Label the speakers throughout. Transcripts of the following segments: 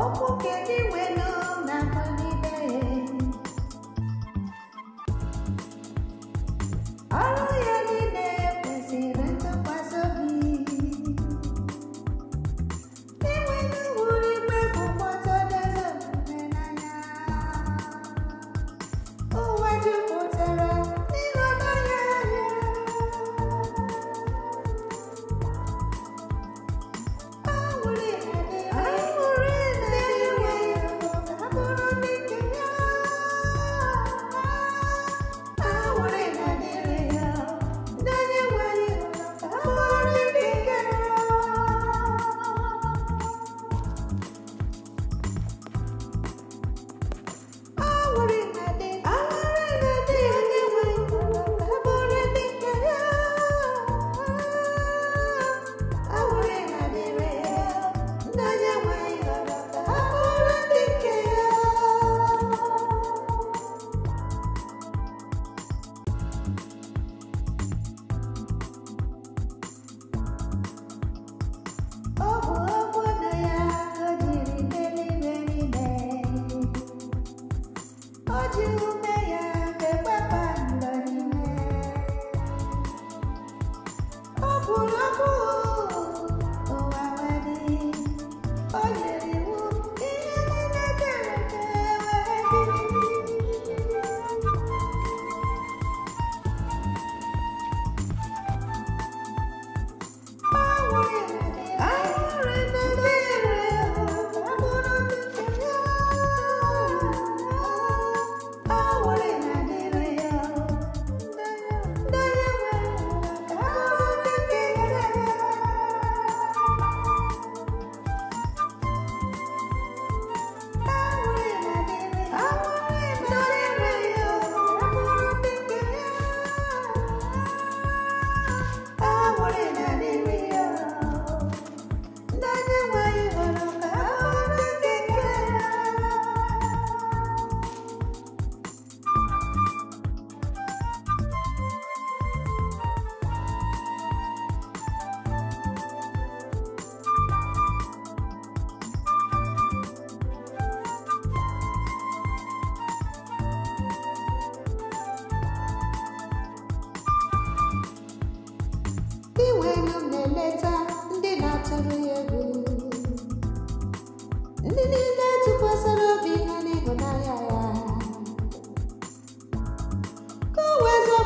Speaker 1: só porque que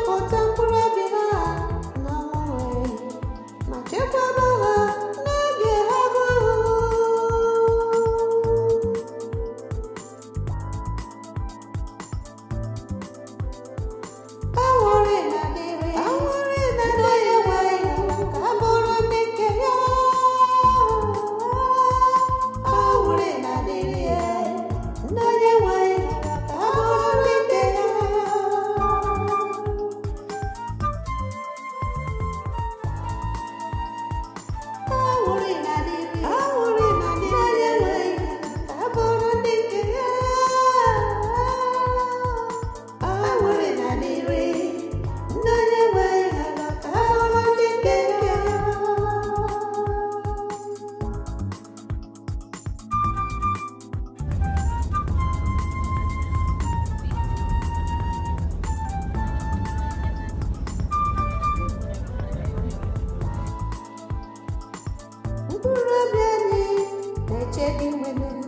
Speaker 1: for temporary. Kura beni, ece bilmedim.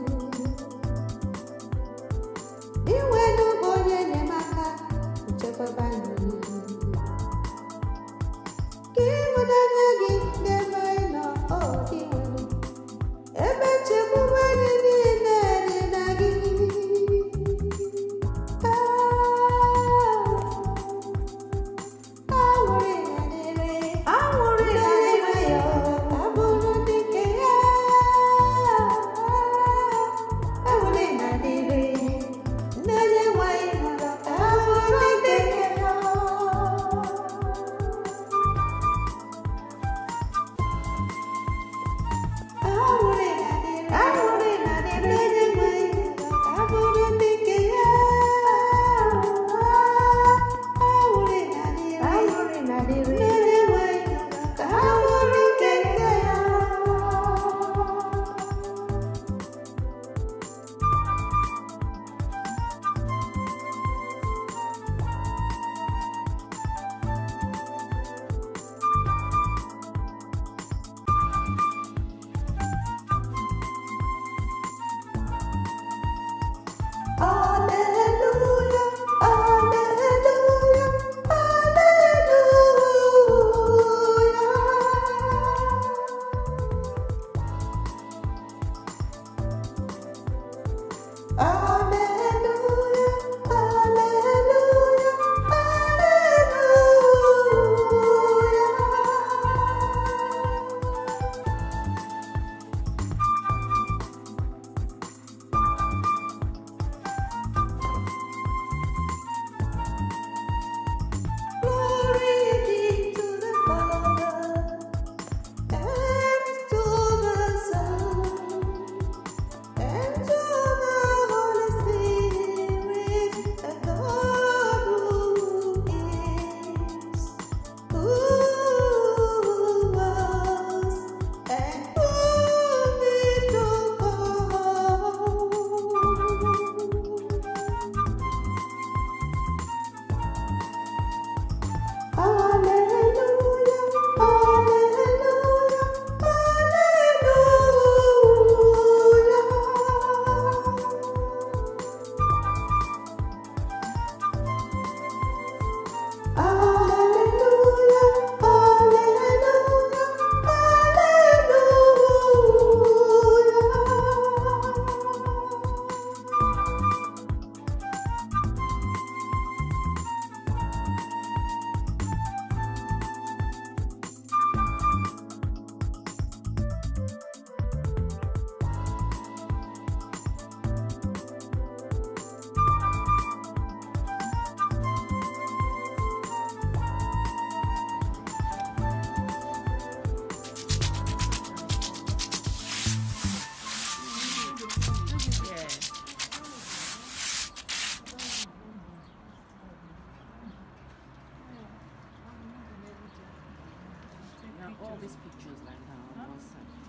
Speaker 1: pictures like that on WhatsApp.